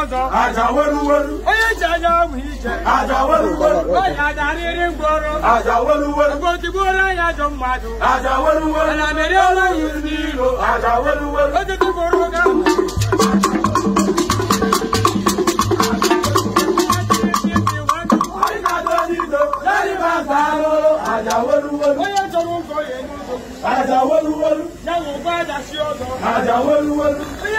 ọzọ. wolu wẹ́rúwẹ́rú. Onye ji anya ahụ ije. Àjà wẹ́rúwẹ́rú. Onye adarịrị mgbọrọ. Àjà wẹ́rúwẹ́rú. Mgbe otigbuola ya ajọ mmadụ. Àjà wẹ́rúwẹ́rú. Ala meriola ya n'ilo. Àjà wẹ́rúwẹ́rú. Oge tigboro oge ahụ. Onye chọrọ ụgọ ya enye ụgọ. Àjà wẹ́rúwẹ́rú. Ya nwụkwa àjà si ọzọ. Àjà wẹ́rúwẹ́rú.